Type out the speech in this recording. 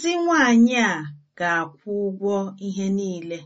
Nzị nwanyị a ga-akwụ ụgwọ ihe niile.